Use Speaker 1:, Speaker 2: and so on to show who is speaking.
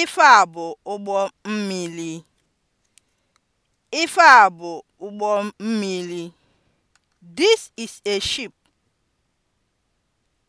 Speaker 1: Ife a bụ ụgbọ mmiri. Ife a bụ ụgbọ mmiri. This is a ship.